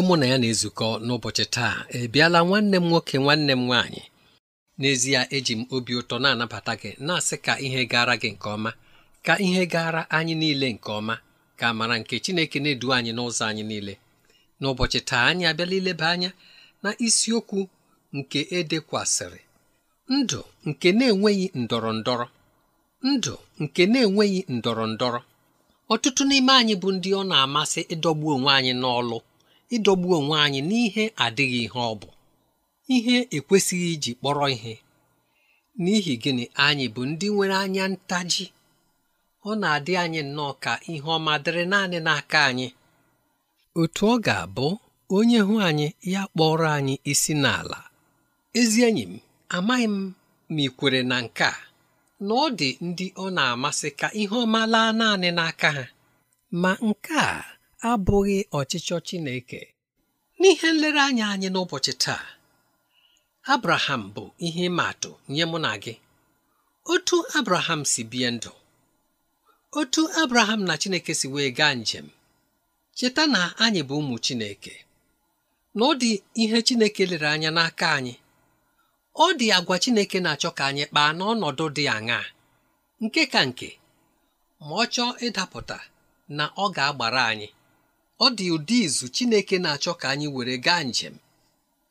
onye mụ na ya na-ezukọ n'ụbọchị taa ebiala nwanne m nwoke nwanne m nwaanyị n'ezie eji m obi ụtọ na-anabata gị na-asị ka ihe gara gị nke ọma ka ihe gara anyị niile nke ọma ka amara nke Chineke na-edu anyị n'ụzọ anyị niile n'ụbọchị taa anyị abịala ileba anya na isiokwu nke edekwasịrị ndụ nke na-enweghị ndọrọ ndọrọ ndụ nke na-enweghị ndọrọ ndọrọ ọtụtụ n'ime anyị bụ ndị ọ na-amasị ịdọgbu onwe anyị n'ọlụ ịdọgbu onwe anyị n'ihe adịghị ihe ọ bụ ihe ekwesịghị iji kpọrọ ihe n'ihi gịnị anyị bụ ndị nwere anya ntaji ọ na-adị anyị nnọọ ka ihe ọma dịrị naanị n'aka anyị otu ọ ga-abụ onye hụ anyị ya kpọrọ anyị isi n'ala ezi enyi m amaghị m ma ị kwere na nke a na ọ dị ndị ọ na-amasị ka ihe ọma laa naanị n'aka ha ma nke a abụghị ọchịchọ Chineke n'ihe nlereanya anyị n'ụbọchị taa Abraham bụ ihe ịma atụ nye mụ na gị otu Abraham si bie ndụ otu Abraham na Chineke si wee gaa njem cheta na anyị bụ ụmụ Chineke na ọ dị ihe Chineke lere anya n'aka anyị ọ dị agwa Chineke na-achọ ka anyị kpaa n'ọnọdụ dị aṅaa nke ka nke ma ọ chọọ ịdapụta na ọ ga-agbara anyị ọ dị ụdị izu Chineke na-achọ ka anyị were gaa njem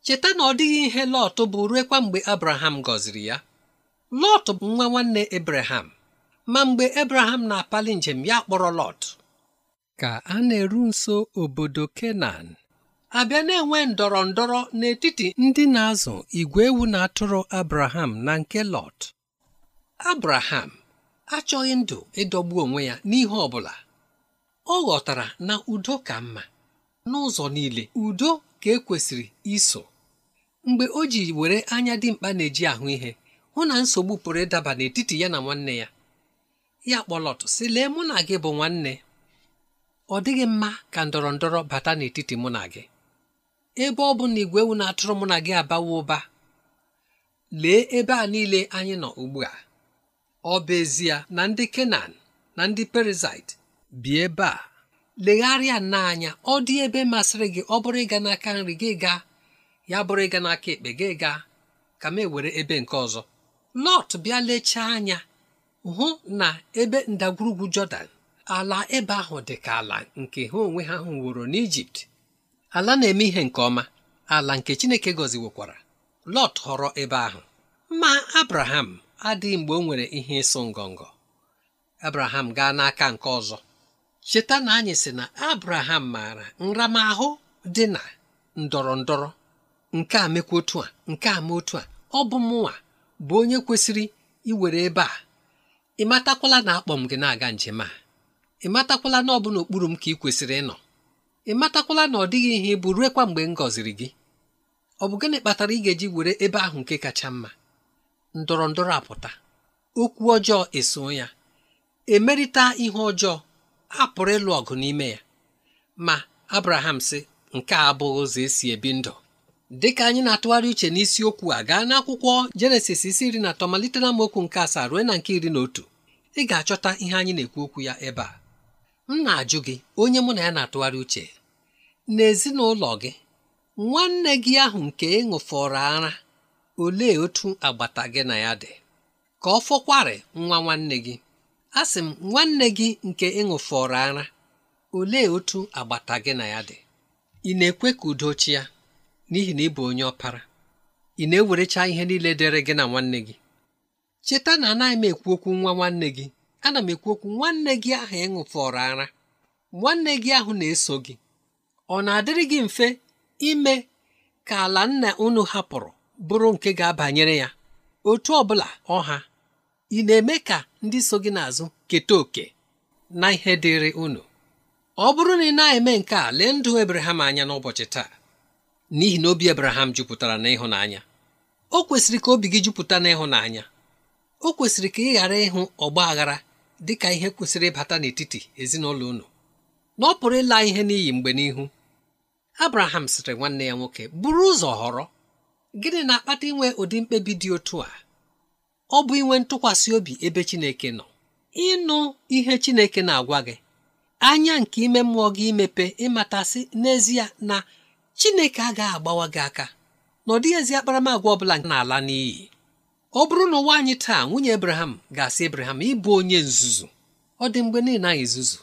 cheta na ọ dịghị ihe Lọt bụ ruekwa mgbe Abraham gọziri ya Lọt bụ nwa nwanne Abraham ma mgbe Abraham na-apali njem ya kpọrọ Lọt ka a na-eru nso obodo Kenan abịa na-enwe ndọrọ ndọrọ n'etiti ndị na-azụ igwe ewu na atụrụ Abraham na nke Lọt Abraham achọghị ndụ ịdọgbu onwe ya n'ihe ọ bụla ọ ghọtara na udo ka mma n'ụzọ niile udo ka ekwesịrị iso mgbe o ji were anya dimkpa na-eji ahụ ihe hụ na nsogbu pụrụ ịdaba n'etiti ya na nwanne ya ya kpọlọtụ sị lee mụ na gị bụ nwanne ọ dịghị mma ka ndọrọ ndọrọ bata n'etiti mụ na gị ebe ọ bụ na igwe ewu na-atụrụ mụ na gị abawa ụba lee ebe a niile anyị nọ ugbu a ọ bụ ezie na ndị Kenan na ndị Perizaịt bi ebe a legharịa n'anya, ọ dị ebe masịrị gị ọ bụrụ ịga n'aka nri gị gaa, ya bụrụ ịga n'aka ekpe gị gaa, ka m ewere ebe nke ọzọ lọt bịa lechaa anya hụ na ebe ndagwurugwu jọdan ala ebe ahụ dị ka ala nke ha onwe ha hụworo n'ijipt ala na-eme ihe nke ọma ala nke chineke gọziwokwara lọt họrọ ebe ahụ ma abraham adịghị mgbe o nwere ihe ịsụ ngọngọ abraham gaa n'aka nke ọzọ cheta na anyị sị na abraham maara nramahụ dị na ndọrọ ndọrọ nke a mekwa otu a nke a otu a ọ bụ mụnwa bụ onye kwesịrị iwere ebe a ịmatakwala na akpọ m gị na-aga njem a ịmatakwala na ọ bụ n'okpuru m ka ị kwesịrị ịnọ ịmatakwala na ọ dịghị ihe bụ ruekwa mgbe m gọziri gị ọ bụ gịnị kpatara ị ga-eji were ebe ahụ nke kacha mma ndọrọ ndọrọ apụta okwu ọjọọ eso ya emerịta ihe ọjọọ a pụrụ ịlụ ọgụ n'ime ya ma abraham sị nke a abụghị ụzọ esi ebi ndụ dịka anyị na-atụgharị uche n'isiokwu a gaa n'akwụkwọ jenesis isi iri na atọ malite na mokwu nke asaa ruo na nke iri na otu ị ga-achọta ihe anyị na-ekwu okwu ya ebe a m na-ajụ gị onye mụ na ya na-atụgharị uche n'ezinụlọ gị nwanne gị ahụ nke ịṅụfọrọ ara olee otu agbata gị na ya dị ka ọ fọkwarị nwa nwanne gị asị m nwanne gị nke ịṅụfọrọ ara olee otu agbata gị na ya dị ị na-ekwe ka udo chi ya n'ihi na ị bụ onye ọpara ị na-ewerecha ihe niile dịrị gị na nwanne gị cheta na anaghị m ekwu okwu nwa nwanne gị ana m ekwu okwu nwanne gị ahụ ịṅụfọrọ ara nwanne gị ahụ na-eso gị ọ na-adịrị gị mfe ime ka ala nna unu hapụrụ bụrụ nke ga-abanyere ya otu ọ bụla ọha ị na-eme ka ndị so gị n'azụ keta oke na ihe dịrị unu ọ bụrụ na ị na-eme nke a lee ndụ ebraham anya n'ụbọchị taa n'ihi na obi ebraham jupụtara n'ịhụnanya o kwesịrị ka obi gị jupụta n'ịhụnanya o kwesịrị ka ị ghara ịhụ ọgba aghara dị ka ihe kwesịrị ịbata n'etiti ezinụlọ unu na ọ pụrụ ịla ihe n'iyi mgbe n'ihu Abraham sịrị nwanne ya nwoke buru ụzọ họrọ gịnị na-akpata inwe ụdị mkpebi dị otu a ọ bụ inwe ntụkwasị obi ebe Chineke nọ ịnụ ihe Chineke na-agwa gị anya nke ime mmụọ gị imepe ịmatasị n'ezie na Chineke agaghị agbawa gị aka na ọ dịghị ezi bụla ọbụla na-ala n'iyi ọ bụrụ na ụwa anyị taa nwunye ebraham ga-asị Abraham ịbụ onye nzuzu ọ dị mgbe niile anyị zuzu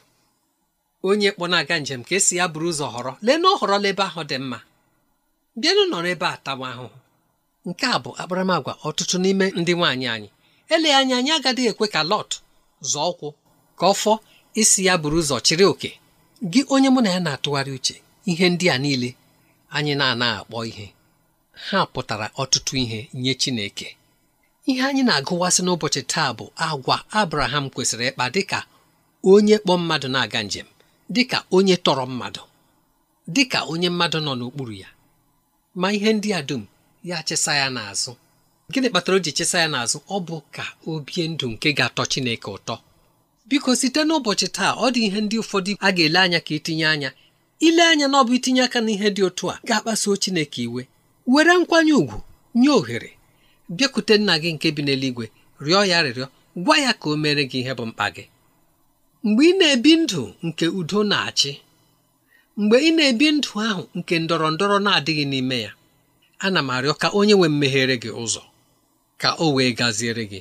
onye kpọ na-aga njem ka esi ya bụrụ ụzọ họrọ lee na ọ họrọla ebe ahụ dị mma bịanụ nọrọ ebe a tawa ahụhụ nke a bụ akparamagwa ọtụtụ n'ime ndị nwaanyị anyị ele anya anyị agaghị ekwe ka lọt zọọ ụkwụ ka ọ isi ya buru ụzọ chịrị oke gị onye mụ na ya na-atụgharị uche ihe ndị a niile anyị na-ana akpọ ihe ha pụtara ọtụtụ ihe nye Chineke ihe anyị na-agụwasị n'ụbọchị taa bụ agwa Abraham kwesịrị ịkpa dịka onye kpọ mmadụ na-aga njem dịka onye tọrọ mmadụ dịka onye mmadụ nọ n'okpuru ya ma ihe ndị a dum ya chesa ya n'azụ gịnị kpatara o ji chesa ya n'azụ ọ bụ ka o bie ndụ nke ga-atọ Chineke ụtọ biko site n'ụbọchị taa ọ dị ihe ndị ụfọdụ a ga-ele anya ka itinye anya ile anya na ọ bụ itinye aka n'ihe dị otu a ga-akpasuo Chineke iwe were nkwanye ùgwù nye ohere bịakute nna gị nke bi n'eluigwe rịọ ya rịrịọ gwa ya ka o mere gị ihe bụ mkpa gị mgbe ị na-ebi ndụ nke udo na-achị mgbe ị na-ebi ndụ ahụ nke ndọrọ ndọrọ na-adịghị n'ime ya ana m arịọ ka onye nwe mmeghere gị ụzọ ka o wee gaziere gị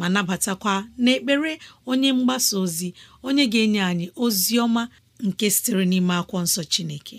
ma nabatakwa n'ekpere onye mgbasa ozi onye ga-enye anyị ozi ọma nke sitere n'ime akwụkwọ nsọ Chineke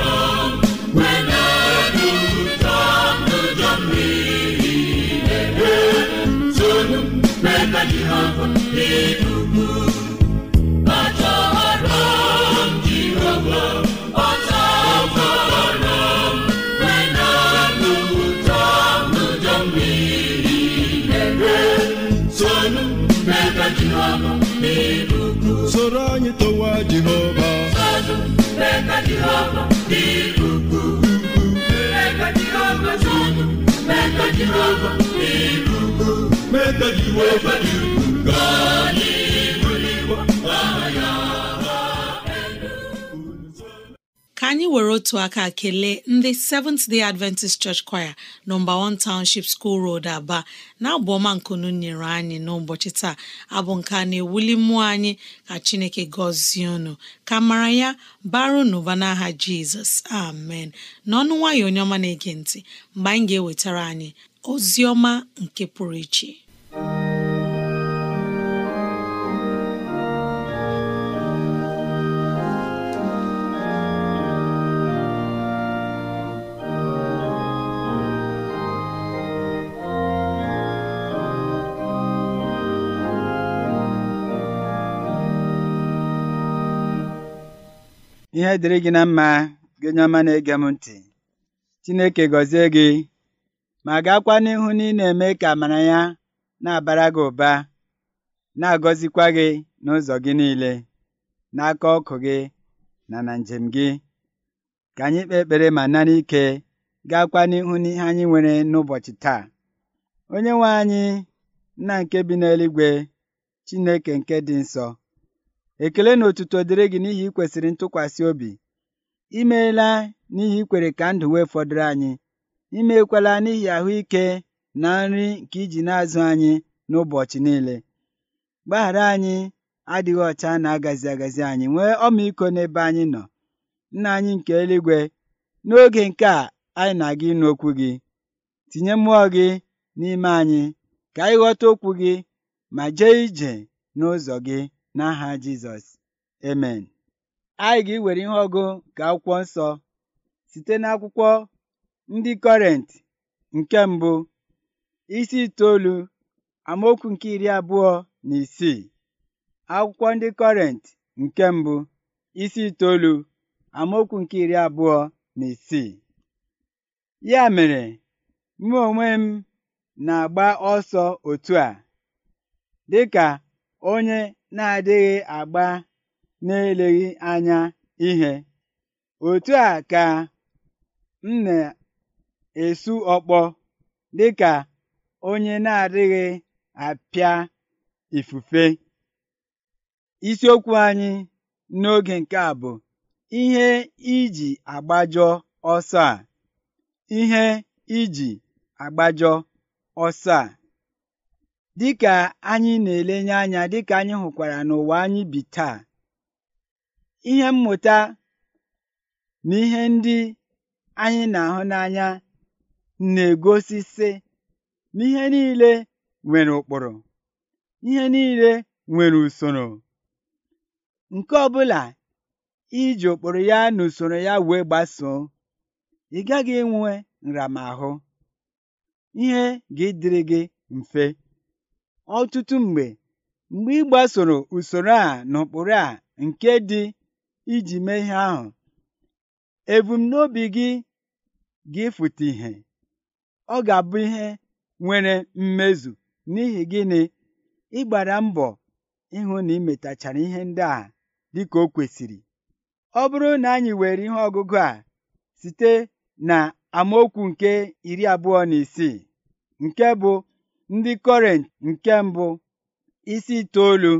jehova soro anyị towa jehova ka anyị were otu aka kelee ndị Seventh Day Adventist Church Choir nọmba 1 Township School Road Aba na-abụ ọma nkunu nyere anyị n'ụbọchị taa abụ nke a na-ewuli mmụọ anyị ka Chineke gọzie unu ka mara ya baru n'ụba n'aha Jizọs amen n'ọnụ nwayọ onye ọma na-ege ntị mgbe anyị ga-ewetara anyị ozi ọma nke pụrụ iche ihe dịrị gị na mma gị onye ọma na-ege m ntị Chineke gọzie gị ma gaakwa n'ihu na ị na-eme ka amara ya na-abara gị ụba na-agọzikwa gị n'ụzọ gị niile na aka ọkụ gị na na njem gị ka anyị kpee ekpere ma nara ike gaakwa n'ihu ihe anyị nwere n'ụbọchị taa onye nwe anyị nna nke bi n'eluigwe Chineke nke dị nsọ ekele na otuto dịrị gị n'ihi ị kwesịrị ntụkwasị obi imeela n'ihi ikwere ka ndụ wee fọdụrụ anyị imekwala n'ihi ahụike na nri nke iji na-azụ anyị n'ụbọchị niile gbaghara anyị adịghị ọcha na agazi agazi anyị nwee ọmịiko n'ebe anyị nọ nna anyị nke eluigwe n'oge nke a anyị na-aga ịnụ okwu gị tinye mmụọ gị n'ime anyị ka anyị ghọta okwu gị ma jee ije n'ụzọ gị N'aha Jizọs, Amen. Anyị ga-ewere ihe ọgụ nke akwụkwọ nsọ site n'akwụkwọ ndị Kọrent nke mbụ isi itoolu amaokwu nke iri abụọ na isii. Akwụkwọ ndị Kọrent nke mbụ isi itoolu amaokwu nke iri abụọ na isii. Ya mere, mụ onwe m na-agba ọsọ otu a dịka onye na-adịghị agba n'eleghị anya ihe otu a ka m na-esu ọkpọ dịka onye na-adịghị apịa ifufe isiokwu anyị n'oge nke a bụ ihe iji agbajọ ọsọ a ihe iji agbajọ ọsọ a Dịka anyị na-elenye anya dịka anyị hụkwara n'ụwa anyị bi taa, ihe mmụta na ihe ndị anyị na-ahụ n'anya na-egosi sị na niile nwere ụkpụrụ, ihe niile nwere usoro. Nke ọbụla iji ụkpụrụ ya na usoro ya wee gbasoo, ị gaghị enwe nramahụ. Ihe ga dịrị gị mfe. ọtụtụ mgbe mgbe ị gbasoro usoro a na a nke dị iji mee ihe ahụ ebumnobi gị ga-efute ihe ọ ga-abụ ihe nwere mmezu n'ihi gịnị ịgbara mbọ ịhụ na ị ihe ndị a dịka o kwesịrị ọ bụrụ na anyị were ihe ọgụgụ a site na amaokwu nke iri abụọ na isii nke bụ Ndị kọrent nke mbụ isi itoolu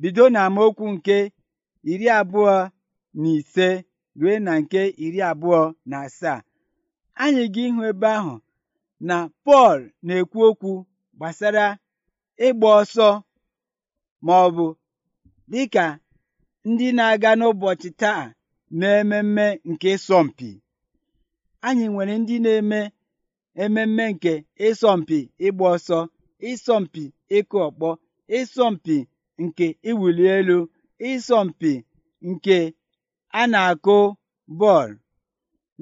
bido n'amaokwu nke iri abụọ na ise ruo na nke iri abụọ na asaa anyị ga ịhụ ebe ahụ na Pọl na-ekwu okwu gbasara ịgba ọsọ ma ọ bụ dịka ndị na-aga n'ụbọchị taa na ememme nke sọmpi. anyị nwere ndị na-eme ememme nke ịsọmpi ịgba ọsọ, ịsọmpi ịkụ ọkpọ, ịsọmpi nke ịwụli elu, ịsọmpi nke a na-akụ bọọlụ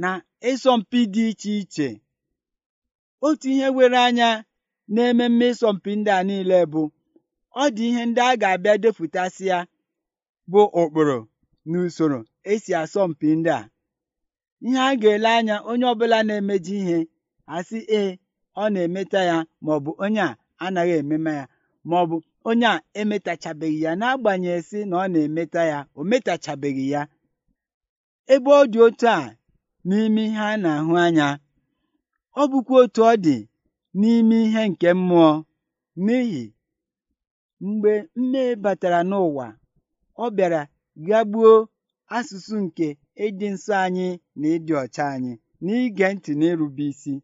na ịsọmpi dị iche iche. Otu ihe were anya n'ememme ịsọmpi ndị a niile bụ ọ dị ihe ndị a ga-abịa ya bụ ụkpụrụ na usoro esi asọmpi ndị a. Ihe a ga-ele anya onye ọbụla na-emeji ihe a ee ọ na emeta ya maọbụ onye a anaghị ememe ya maọbụ onye a emetachabeghị ya n'agbanyeghị sị na ọ na-emeta ya o metachabeghị ya ebe ọ dị otu a n'ime ihe a na-ahụ anya ọ bụkwa otu ọ dị n'ime ihe nke mmụọ n'ihi mgbe mmehie batara n'ụwa ọ bịara gagbuo asụsụ nke ịdị nsọ anyị na ịdị ọcha anyị n'ige ntị na isi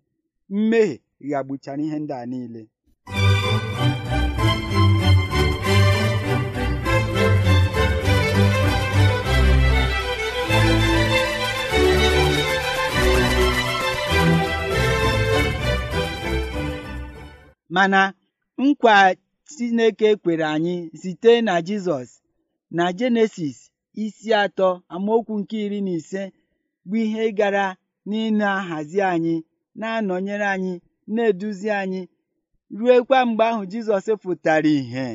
mmehie ga-agbuchara ihe ndị a niile mana nkwa chineke kwere anyị site na jizọs na jenesis isi atọ amaokwu nke iri na ise bụ ihe gara n'ịna-ahazi anyị na-anọnyere anyị na-eduzi anyị ruekwa mgbe ahụ Jizọs pụtara ìhè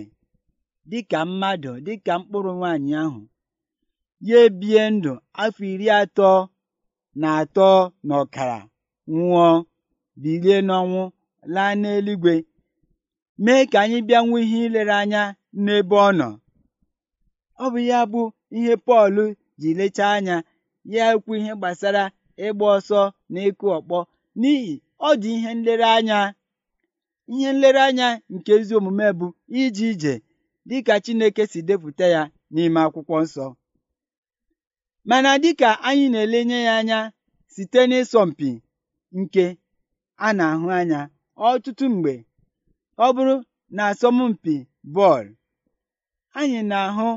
dịka mmadụ dịka mkpụrụ nwanyị ahụ ya ebie ndụ afọ iri atọ na atọ na ọkara nwụọ bilie n'ọnwụ laa n'eluigwe mee ka anyị bịa ihe ilere anya n'ebe ọ nọ ọ bụ ya bụ ihe Pọl ji lechaa anya ya ekwu ihe gbasara ịgba ọsọ na ịkụ ọkpọ n'ihi ọ dị ihe nlereanya ihe nlereanya nke ezi omume bụ ije ije dịka Chineke si depụta ya n'ime akwụkwọ nsọ mana dịka anyị na-elenye ya anya site n'ịsọmpi nke a na-ahụ anya ọtụtụ mgbe ọ bụrụ na asọmpi bọọlụ anyị na-ahụ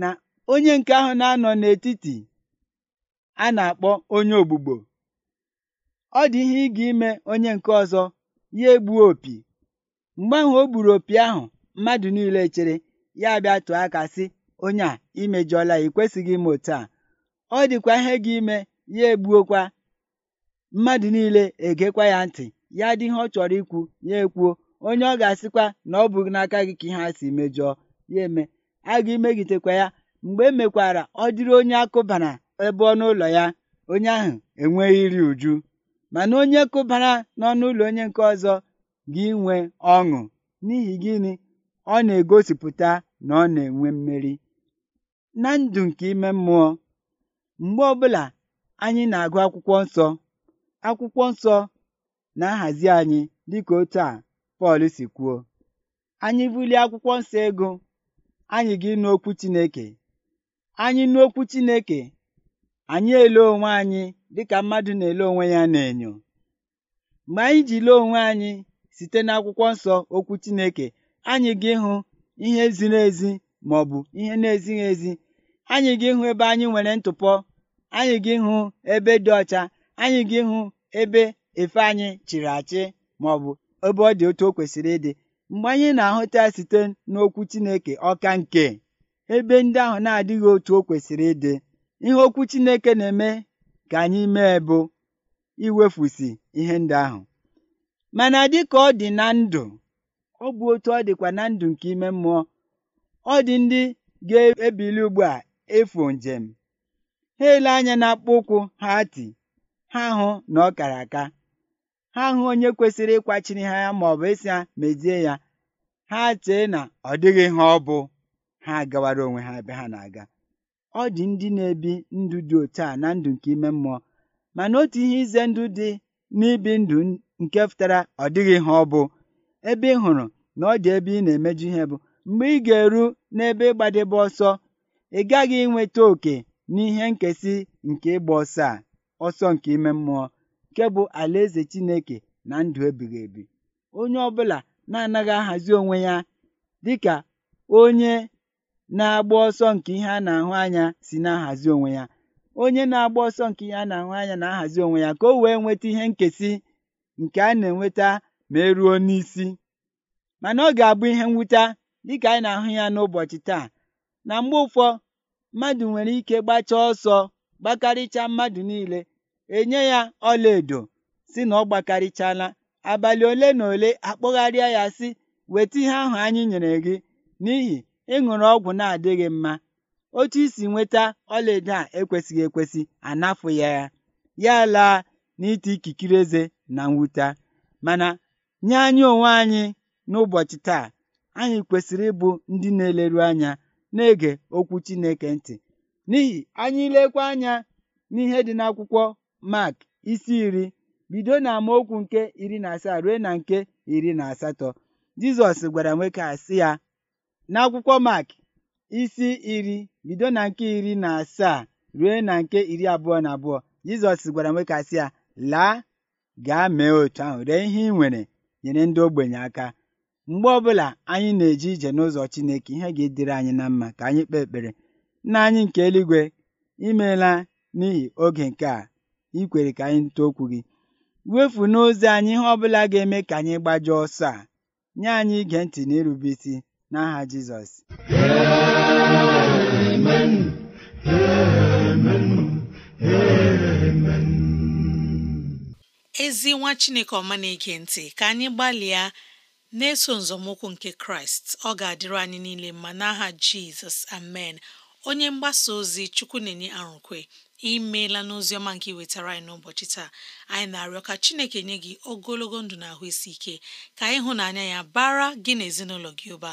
na onye nke ahụ na-anọ n'etiti a na-akpọ onye ogbugbo ọ dị ihe ị ga-ime onye nke ọzọ ya egbuo opi mgbe ahụ o gburu opi ahụ mmadụ niile chere ya bịa tụọ aka sị onye a imejọla i kwesịghị ime otu a ọ dịkwa ihe gị ime ya egbuokwa mmadụ niile egekwa ya ntị ya dị ihe ọ chọrọ ikwu ya ekwuo onye ọ ga-asịkwa na ọ bụghị n'aka gị ka ihe a si mejọọ ya eme a ga-emegitekwa ya mgbe emekwara ọ dịrị onye akụbana ebe ọnụ ụlọ ya onye ahụ enweghị iri uju mana onye kụbara n'ọnụ ụlọ onye nke ọzọ ga-enwe ọṅụ n'ihi gịnị ọ na-egosipụta na ọ na-enwe mmeri na ndụ nke ime mmụọ mgbe ọbụla anyị na-agụ akwụkwọ nsọ akwụkwọ nsọ na-ahazi anyị dịka otu a Pọl si kwuo anyị bulie akwụkwọ nsọ ego anyị ga ịnụ Chineke anyị nụ okwu Chineke anyị ele onwe anyị dịka mmadụ na-ele onwe ya n'enyo mgbe anyị ji lee onwe anyị site n'akwụkwọ nsọ okwu Chineke anyị gị ịhụ ihe ziri ezi ma ọ bụ ihe na-ezighị ezi anyị gị ịhụ ebe anyị nwere ntụpọ anyị gị ịhụ ebe dị ọcha anyị gị ịhụ ebe efe anyị chịrị achị ma ọ bụ ebe ọ dị otu o kwesịrị ịdị mgbe anyị na-ahụta ya site n'okwu Chineke ọka nke ebe ndị ahụ na-adịghị otu o kwesịrị ịdị ihe okwu Chineke na-eme ka anyị mee bụ iwefusi ihe ndị ahụ mana dịka ọ dị na ndụ ọ bụ otu ọ dịkwa na ndụ nke ime mmụọ ọ dị ndị ga-ebili ugbu a efu njem ha ele anya na-akpọ ụkwụ ha ati ha hụ na ọ kara aka ha hụ onye kwesịrị ịkwachiri ha ya ma ọ bụ ịsị ya mezie ya ha chee na ọ dịghị ha ọ bụ ha gawara onwe ha ebe ha na-aga ọ dị ndị na-ebi ndụ dị otu a na ndụ nke ime mmụọ mana otu ihe ize ndụ dị n'ibi ndụ nke fụtara ọ dịghị ha ọ bụ ebe ị hụrụ na ọ dị ebe ị na-emeju ihe bụ mgbe ị ga-eru n'ebe ịgbadebe ọsọ ị gaghị inweta oke n'ihe nkesị nke ịgba ọsọ a ọsọ nke ime mmụọ nke bụ alaeze Chineke na ndụ ebighị ebi onye ọbụla na-anaghị ahazi onwe ya dịka onye na-agba ọsọ nke ihe a na-ahụ anya si na-ahazi onwe ya onye na-agba ọsọ nke ihe a na-ahụ anya na-ahazi onwe ya ka o wee nweta ihe nkesị nke a na-enweta ma eruo n'isi mana ọ ga-abụ ihe mwute dịka anyị na-ahụ ya n'ụbọchị taa na mgbe ụfọ mmadụ nwere ike gbachaa ọsọ gbakarịcha mmadụ niile enye ya ọlaedo si na ọ gbakarịchala abalị ole na ole akpọgharịa ya si weta ihe ahụ anyị nyere gị n'ihi ịṅụrụ ọgwụ na-adịghị mma otu isi nweta ọlaedo a ekwesịghị ekwesị anafụ ya ya ya laa n'ite ikikere eze na mwute mana nye anyị onwe anyị n'ụbọchị taa anyị kwesịrị ịbụ ndị na-eleru anya na-ege okwu Chineke ntị n'ihi anyị lekwa anya n'ihe dị n'akwụkwọ Mark isi iri bido na amaokwu nke iri na asaa ruo na nke iri na asatọ Jizọs gwara nwoke a sị ya n'akwụkwọ Mak isi iri bido na nke iri na asaa ruo na nke iri abụọ na abụọ Jizọs gwara nwoke ya laa gaa mee otu ahụ ree ihe ị nwere nyere ndị ogbenye aka mgbe ọbụla anyị na-eje ije n'ụzọ Chineke ihe ga-edere anyị na mma ka anyị kpee ekpere nna anyị nke eluigwe imeela n'ihi oge nke a ikwere ka anyị nụta okwu gị wefu n'ụzọ anyị ihe ọbụla ga-eme ka anyị gbajọọ ọsọ a nye anyị ige ntị na irube isi n'aha Jizọs ezi nwa Chineke ọma na-ege ntị ka anyị gbalịa na-eso nzọmụkwụ nke Kraịst ọ ga-adịrị anyị niile mma n'aha Jizọs amen onye mgbasa ozi chukwu na-enye arụkwe imeela n'ozi ọma nke iwetara anyị n'ụbọchị taa anyị na-arịọ ka chineke nye gị ogologo ndụ na ahụ isi ike ka ịhụnanya ya bara gị na ezinụlọ gị ụba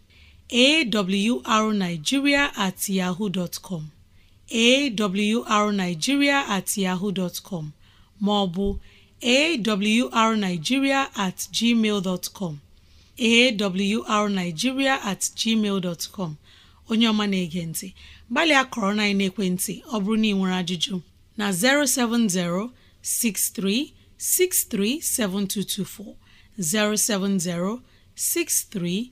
awrnigeria at yahoo dot com awrnigeria at yahoo dot com maọbụ awrnigeria at gmail dot com awrnigeria at gmail dot com onye ọma na-ege ntị gbalịa kọrọ na ekwentị ọ bụrụ na ị nwere ajụjụ na 070 6363 7224 070 63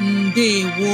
ndewo